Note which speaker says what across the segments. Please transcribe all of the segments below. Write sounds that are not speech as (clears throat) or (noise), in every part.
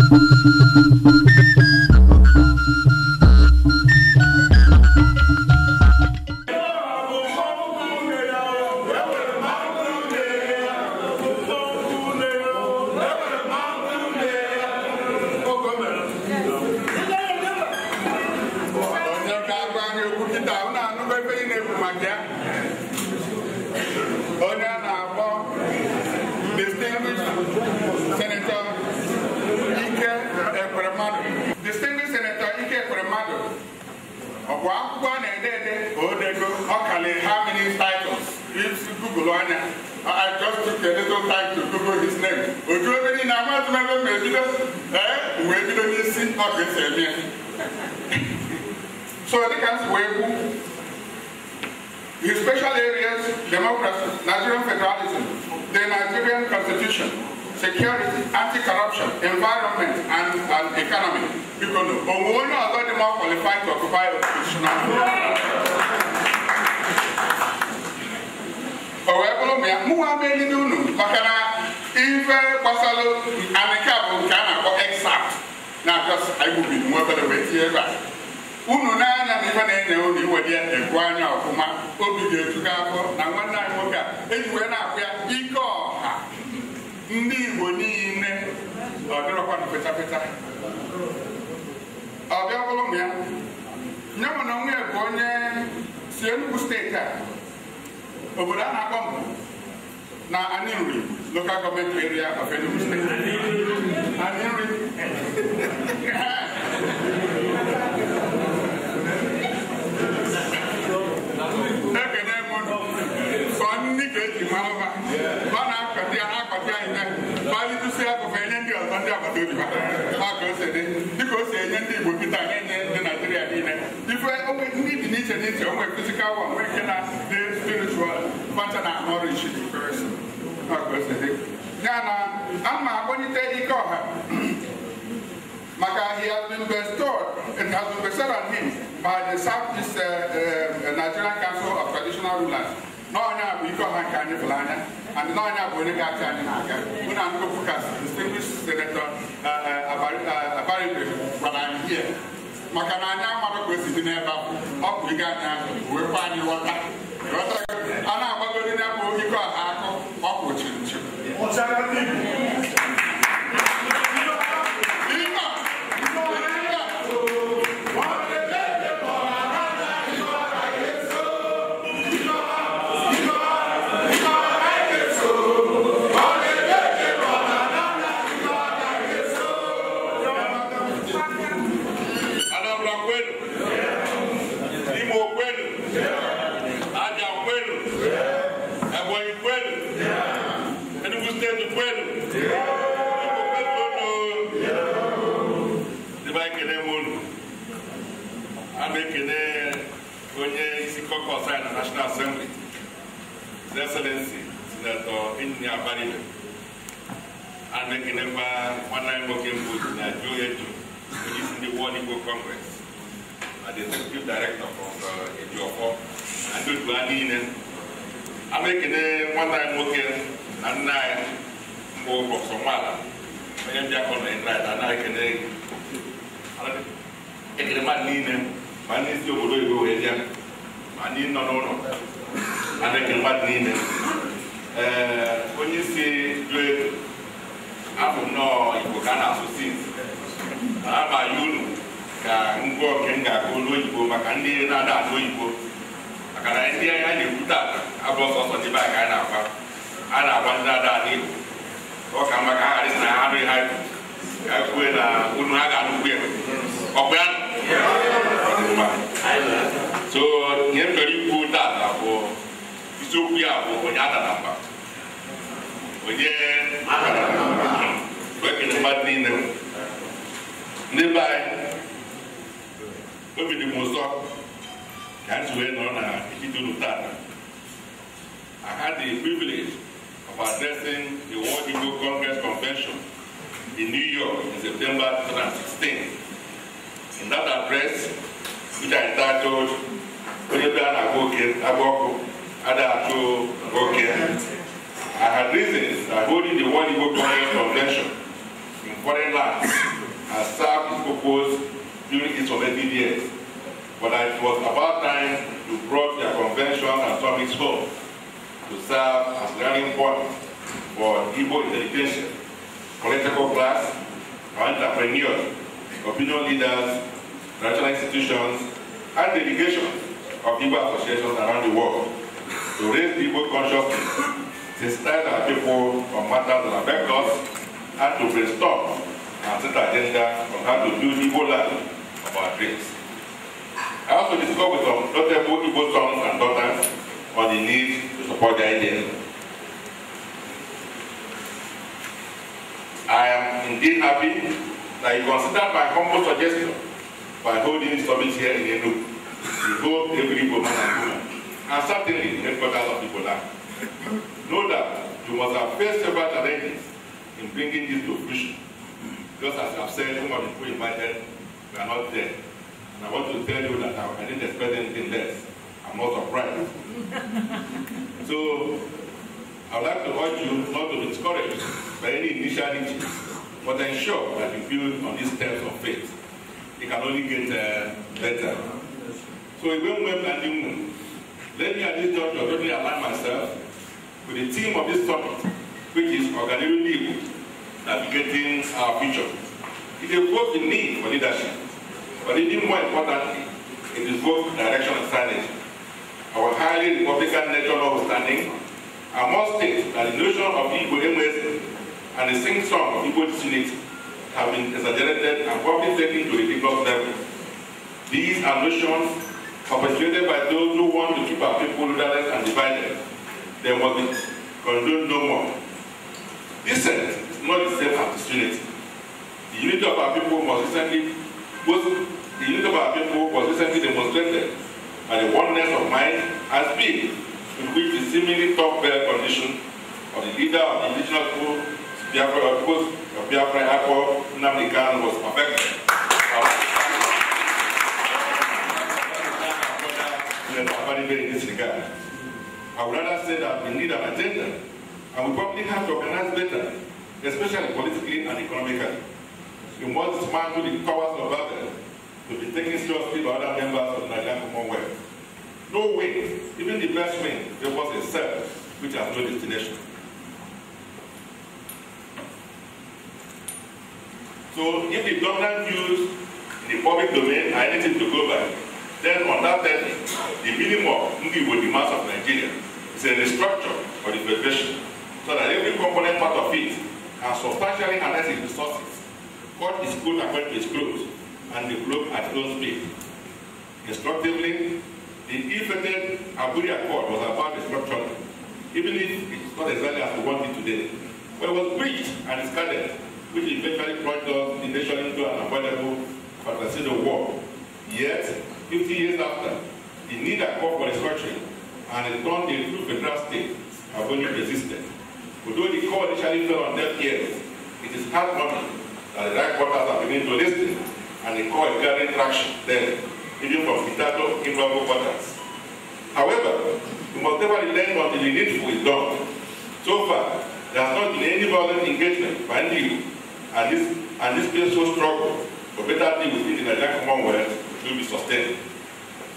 Speaker 1: Thank you. akwụkwọ a na-ede ede odego ọkali how many titles if google anya I just took a little time to google his name oju ebe niile amatụla ebe m ebido ee wee bido n'isi ọka esi eme ya so dịka m si wee kwu his special areas democracy nigerian federalism the nigerian constitution security, anti-corruption, environment, and, and economy. Because Onwono has already more qualified to occupy oppositional However, Muhammad Nidunu, Makana, Ife, Basalo, and the Cabo, Ghana, or exact. Now, just I will be more than a way here, right? unu n'anya na ife na-enye unu iwe dị ekwu anya ọfụma obi ga-etu gị afọ na nwanne anyị nwoke a ndị Igbo niile ọdịrọkwa na petapeta ọbịa bụrụ m ya nye ya mụ na onwe bụ onye si Enugu steeti a obodo a na-akpọ mbụ na Anịnri local gọọmenti area of Enugu steeti Anịnri maka ibi ha ka o si dị dịka o si enye ndị Igbo kịta na-enye ndị Naijiria niile ife ndị dị n'iche n'iche onwe fizikal wa nwee ike na spiritual na ya na ike ọha (clears throat) maka he has been bestowed, has been bestowed on him by the Southeast uh, uh, Nigerian Council of Traditional Rulers. n'ọnya bụ ike ọha nke anyị pụrụ anya and n'ọnya bụ onye ga-achị anyị na-aga mụ na ụna nkụpụkas distinguished senator uh, uh, uh, abaribe gwara anyị hie maka na anya amadụ ka esi dị n'ebe ahụ ọ bụ ige anyị azụ wekwa anyị ghọta a na-agbagori n'ebe ike ọha akụ ọ kwụ chiri chiri executive director of Ejioffor Adodua niile ana ekene nwata anyị nwoke na nna anyị mbụ prọfesọ Nwala onye mbịakọ na Indraịt ana ekene ekene mmadụ niile ma ndị isi obodo oyibo wee bịa ma ndị nọ n'ụlọ ana ekene mmadụ niile ee onye isi jụọ ego abụ nnọọ Igbo ka a na-asụ sinsi ama ya unu ka ngwa oke m ga-agụ n'oyibo maka ndị na-ada ada oyibo maka na ndị a na-ekwute ata abụ ọsọsọ dịbe a ka a na-agba a na-agba ndị na ada igbo ọ ka mma ka ha ghara na ha anụghị ha ka kwue na unu ha ga-anụkwu ya ọkwa ya so nye m chọrọ ikwu tata bụ isiokwu ya bụ onye adara mba onye ekele mmadụ niile ndị be anyị obi dị m ụsọ ka ha wee nọrọ na ikike unu I had the privilege of addressing the World Igbo Congress Convention in New York in September 2016. In that address, which I titled Onyebi a na-agba oke agba ọkụ ada atụ I had reasons that holding the World Igbo Congress Convention in foreign lands has served to propose during its formative years. But it was about time to brought the convention and summits home to serve as learning point for Igbo education, political class, entrepreneurs, opinion leaders, national institutions, and delegations of Igbo associations around the world to raise Igbo consciousness, inspire our people on matters that affect us, and to restore and set agenda on how to do Igbo life about race. I also discussed with some notable Igbo sons and daughters on the need to support their identity. I am indeed happy that you consider my humble suggestion by holding this summit here in Enugu to go every woman and woman, and certainly the headquarters of Igbo land. Know that you must have faced several challenges in bringing this to fruition, just as you have said, some of the people invited We are not there. And I want to tell you that I, I didn't expect anything less. I'm not surprised. (laughs) so I would like to urge you not to be discouraged by any initiality, but ensure that you build on these steps of faith. It can only get uh, better. So even when and new moon, let me at this juncture totally align myself with the theme of this topic, which is organizing people navigating our future. It evokes the need for leadership, but even more importantly, it evokes direction and strategy. Our highly Republican nature understanding. I must state that the notion of Igbo MS and the sing song of Igbo disunity have been exaggerated and probably taken to ridiculous level. These are notions perpetuated by those who want to keep our people rudderless and divided. They must be condoned no more. Dissent is not the same as disunity. The unity of our people was recently, was, the unity of our people was recently demonstrated by the oneness of mind and speed in which the seemingly top bare condition of the leader of the indigenous school Biafra, of of Biafra Akko Nnamdi was perfected. I would rather say that we need an agenda, and we probably have to organize better, especially politically and economically. He wants to dismantle the powers of Babel to be taking seriously by other members of the Nigerian Commonwealth. No way. even the best way, there was a self which has no destination. So if the dominant views in the public domain are anything to go by, then on that end, the minimum of Ngiwo, the mass of Nigeria, is a restructure of the federation so that every component part of it can substantially harness its resources what is good coat according to and the globe at his own speed. Instructively, the ill-fated Abuja court was about destruction, even if it's not exactly as we want it today. But it was breached and discarded, which eventually brought us the nation into an avoidable civil war. Yet, 50 years after, the need had called for destruction, and it turned into a federal state, Abuja resisted. Although the court initially fell on deaf ears, it is heartwarming and the right quarters are beginning to listen and the call is gathering traction then even from Itato invaluable quarters. However, you must never relent until the needful is done. So far, there has not been any violent engagement by the EU and this and this peaceful struggle for better things within the Nigerian Commonwealth will be sustained.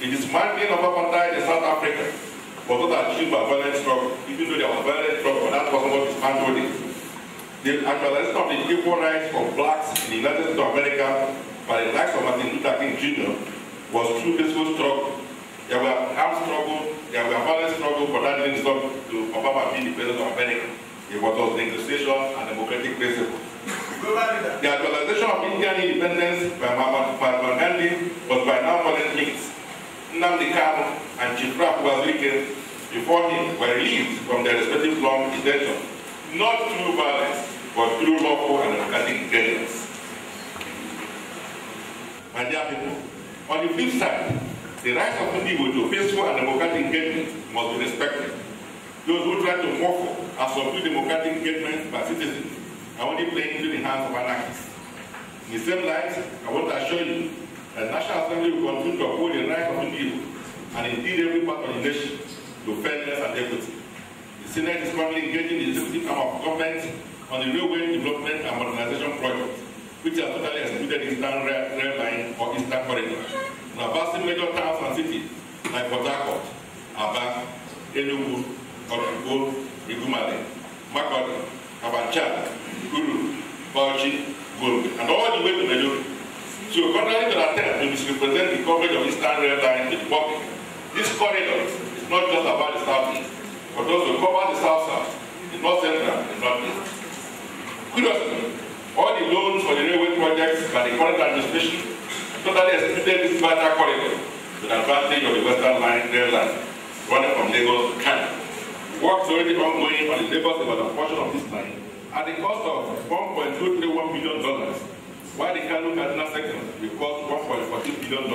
Speaker 1: The dismantling of apartheid in South Africa was not achieved by violent struggle, even though there was violent struggle, but that was not dismantled. the actualization of the equal rights of blacks in the United States of America by the likes of Martin Luther King Jr. was through peaceful struggle. There were armed struggle, there were violent struggle for that links up to Obama being the president of America. It was negotiation and democratic principle. the actualization of Indian independence by Mahatma Gandhi was by now violent means. Nnamdi and Chief Rafi before him were released from their respective long detention not through violence, but through lawful and democratic guidance. My dear people, on the flip side, the rights of people to peaceful and democratic engagement must be respected. Those who try to muffle and subdue democratic engagement by citizens are only playing into the hands of anarchists. In the same light, I want to assure you that National Assembly will continue to uphold the rights of people and indeed every part of the nation to fairness and equity. Senate is currently engaging the executive arm of government on the railway development and modernization project, which has totally excluded Eastern rail, rail Line or Eastern Corridor. Now, vast major towns and cities like Port Harcourt, Aba, Enugu, Otukpo, Igumale, Makodi, Kabacha, Guru, Bauchi, Gombe, and all the way to Maiduguri. So, contrary to the attempt to misrepresent the coverage of Eastern Rail Line to the public, this corridor is not just about the Southeast, for those who cover the South South, the North Central, the east. Curiously, all the loans for the railway projects by the current administration totally excluded this vital corridor to the advantage of the Western Line rail line running from Lagos to Canada. Works already ongoing on the Lagos Ibadan portion of this line at the cost of $1.231 million, while the Kano Kaduna section will cost $1.14 billion.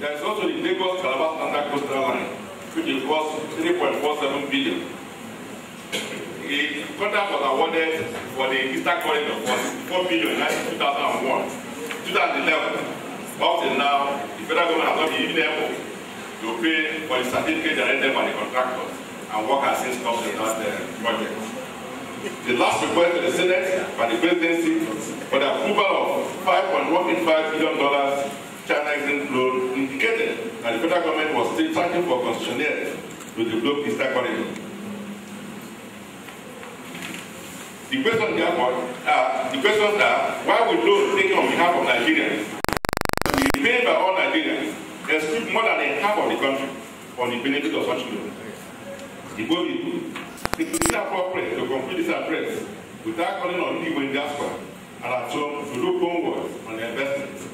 Speaker 1: There is also the Lagos Calabar Standard Coastal Line which is worth 3.47 billion. The contract was awarded for the Eastern Corridor was 4 billion in 2001. 2011, up till now, the federal government has not been even able to pay for the certificate generated by the contractors, and work has since stopped in that uh, project. The last request to the Senate by the presidency for the approval of $5.185 billion and the federal government was still fighting for concessionaires to develop Eastern Corridor. The question therefore, uh, the questions that, why would loans taken on behalf of Nigerians we paid by all Nigerians exclude more than half of the country on the benefit of such loans? The goal is it is inappropriate to complete this address without calling on people in diaspora and at home to look homeward on their investments.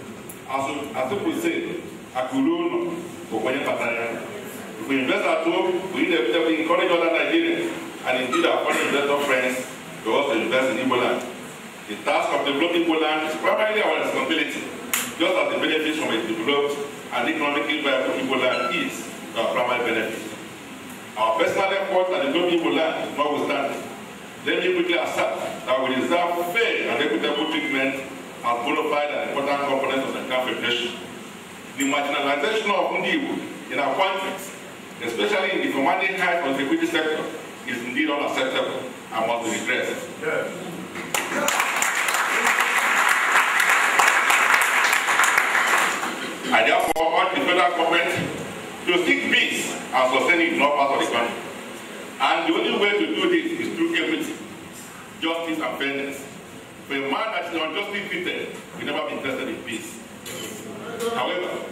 Speaker 1: As, as if we say, Akuluno, Okoye Pataya. If we invest at home, we need to encourage other Nigerians and indeed our foreign investor friends to also invest in Igboland. The task of developing Igboland is primarily our responsibility, just as the benefits from a developed and economically viable Igboland is our primary benefit. Our personal efforts at developing Igboland notwithstanding, let me quickly assert that we deserve fair and equitable treatment as bona fide and important components of the country. preparation. the marginalization of Ndiwu in our context, especially in the commanding high contributing sector, is indeed unacceptable and must be addressed. Yes. I therefore urge the federal government to seek peace and sustaining it in all parts of the country. And the only way to do this is through equity, justice, and fairness. For a man that is unjustly treated will never be interested in peace. However,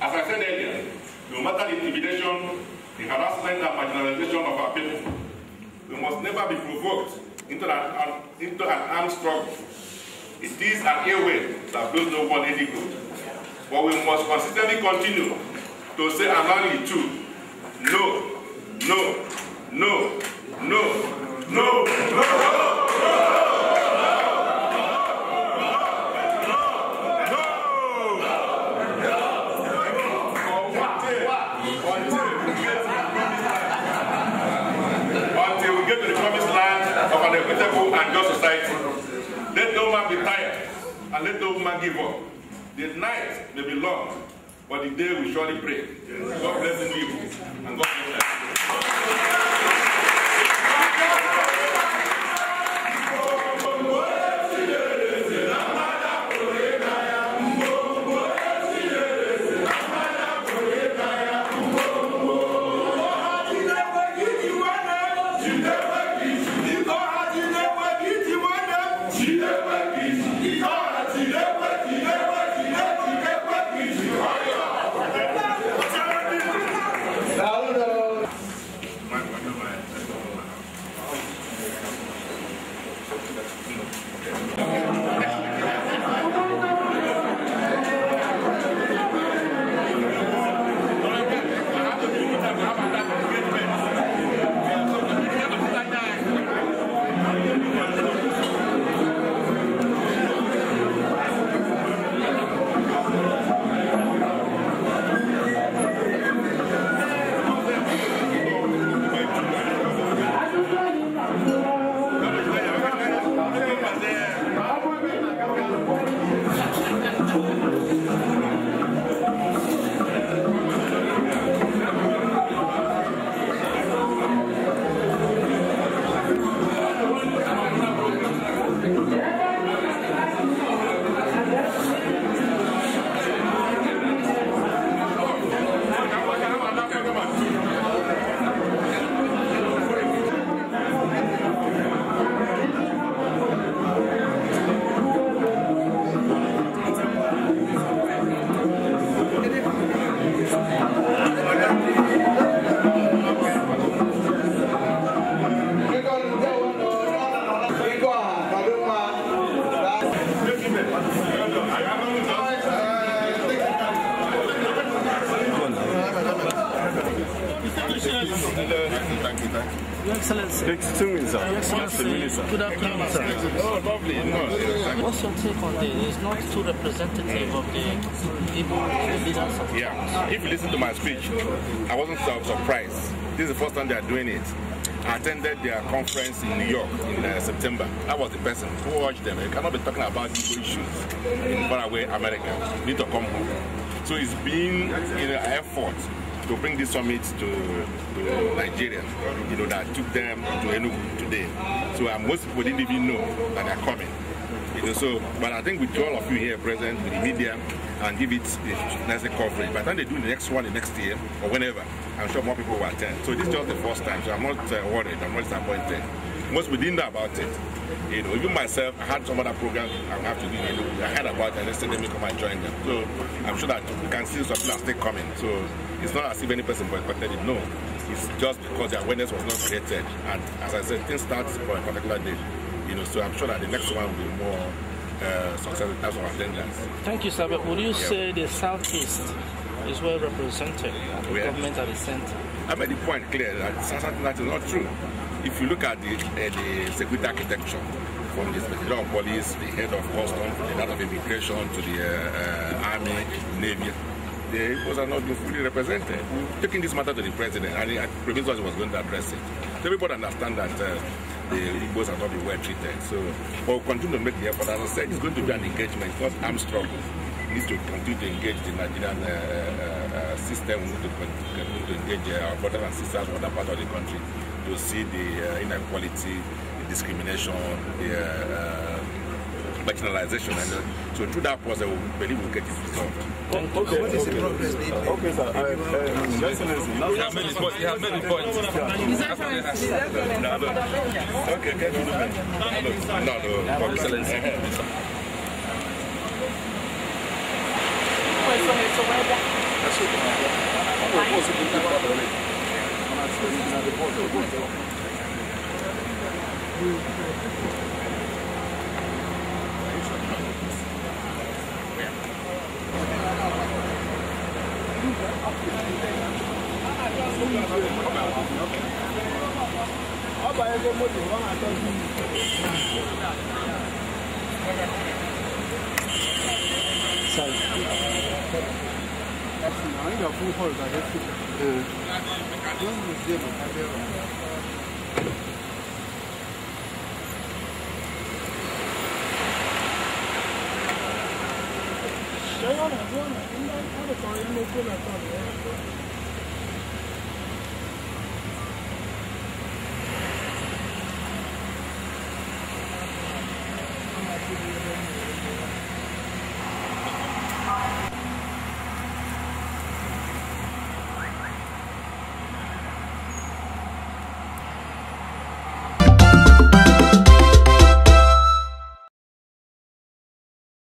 Speaker 1: As I said earlier, no matter the intimidation, the harassment and marginalization of our people, we must never be provoked into an, an, into an armed struggle. It is an airway that blows no one any good. But we must consistently continue to say annually too, no, no, no, no, no, no. no. society. Let no man be tired, and let no man give up. The night may be long, but the day will surely break. God bless the people, and God bless us. Your Excellency. Your Excellency. Your Excellency. Good afternoon, sir. Oh, lovely. What's your take on this? It's not too representative of the people, leaders of Yeah. If you listen to my speech, I wasn't so surprised. This is the first time they are doing it. I attended their conference in New York in uh, September. I was the person who watched them. You cannot be talking about these issues in faraway America. You need to come home. So it's been an effort to bring this summit to, to Nigeria. You know, that took them to Enugu today. So uh, most people didn't even know that they're coming. You know, so, but I think with all of you here present, with the media, and give it a nice coverage. By the time they do the next one, the next year, or whenever, I'm sure more people will attend. So this is just the first time, so I'm not uh, worried, I'm not disappointed. Most people didn't know about it. You know, even myself, I had some other programs I have to do. You know, I heard about it and they said, let me come and join them. So I'm sure that we can see some people are still coming. So it's not as if any person boycotted it, no. It's just because the awareness was not created. And as I said, things start for a particular day. You know, so I'm sure that the next one will be more uh, than in terms of attendance. Thank you, sir. But would you yeah. say the Southeast is well represented at the yeah. government at the center? I made the point clear that something that is not true. If you look at the, uh, the security architecture, from the Inspector of Police, the head of customs, the head of immigration, to the uh, uh, army, navy, the Igbos are not being fully represented. Mm. Taking this matter to the president, and the premier was going to address it. So everybody understand that uh, the Igbos are not being well treated. So we'll continue to make the effort. As I said, it's going to be an engagement, Because I'm struggle. We need to continue to engage the Nigerian uh, uh, uh system. We need to continue to engage our brothers and sisters from other parts of the country to see the uh, inequality, the discrimination, the uh, marginalization. And uh, so through that process, I believe we'll get it resolved. Okay, okay, okay. okay sir. I, um, You have many points. You have many points.
Speaker 2: No,
Speaker 1: no. Okay, can you No, no. no. Excellency. Thank you. ọba ẹgbẹ́ mọ́tò wọn àtọ́jú Àwọn ìgbà fún ọ̀rọ̀ 我说呢，应该他的导演没过来，导演。